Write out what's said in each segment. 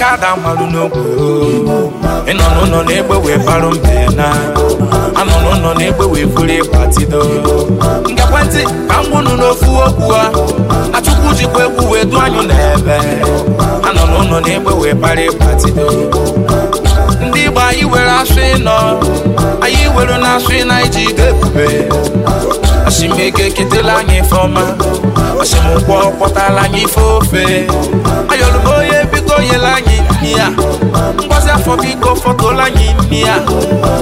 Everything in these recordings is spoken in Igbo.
kada malụ n'ogwe ịnọ n'ụlọ na-egbe wee barụ mbe na anọ n'ụlọ na-egbe wee buru ịgbatido nke ekwentị ka m gwụnụ n'ofu okwu a achụkwu jikwa egwu wee du anyụ n'ebe anọ n'ụlọ na-egbe wee bara ịgbatido ndị Igbo anyị were asụ ịnọ anyị were na asụ ịna iji ide ebube asimego eketela anyị ife ọma asimụkwọ kpọtala anyị ife ofe ayọlụbo fọtụla anyị imi ya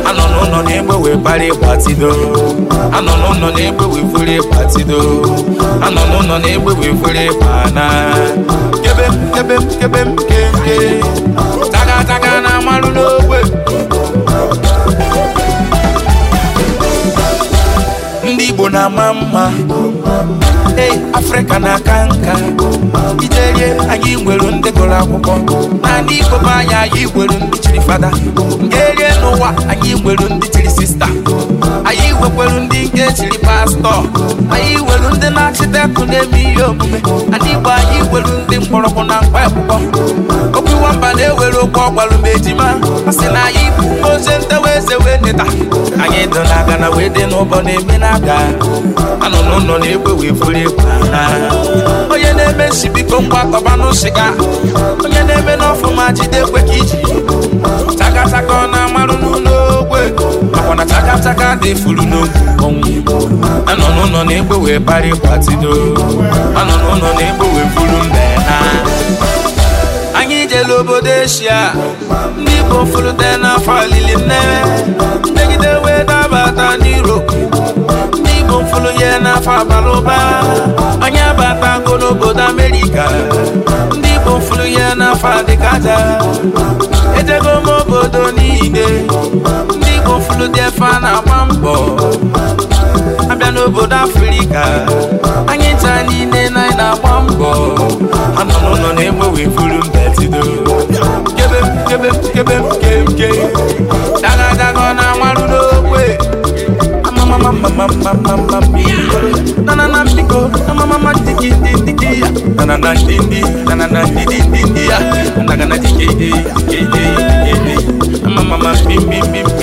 anọ n'ụlọ na-egbe wee anọ n'ụlọ na-egbe wee anọ n'ụlọ na-egbe wee fere ịgbana kebe m kebe m kebe taga taga na amalụ n'ogbe ndị Igbo na-ama mma ei afrịka na-aka nka iterie anyị nwere ndị gụrụ akwụkwọ na ndị ikom anyị anyị nwere ndị chiri fada nke erie n'ụwa anyị nwere ndị nwekwelu ndị nke chiri pastọ anyị welu ndị na-achịtekụ na-eme ihe omume ndị Igbo anyị welu ndị mkpọrọgwụ na mkpa akwụkwọ okwu nwamba na-ewere okwu ọgbalụ ma ejima a na anyị bụ ozi ntewa eze wee neta anyị dị na aga na wee dị n'ụbọ na-eme na aga anọ n'ụlọ na-egwe wee furu egwu onye na-eme nsibiko biko kọba n'ụsịga onye na-eme n'ọfụma jide kwe ka iji chakachaka ọ na-amarụ n'ụlọ Chaka dị furu n'oge anọ n'ụlọ na-egbe wee parị gbatido anọ n'ụlọ na-egbe wee buru mbe na anyị jere obodo eshia ndị Igbo furute n'afọ alili nnewe mmegide wee dabata n'Europe ndị Igbo furu ya n'afọ abalị ụba anyị abatago n'obodo Amerịka ndị Igbo furu ya n'afọ adịkaja ejego m obodo niile ndị gofulu dị efe a na-agba mbọ abịa n'obodo afrịka anyị taa niile na anyị na-agba mbọ anụnụnụ na-egbe wee buru mbetido kebe m na amarụ n'okwe me,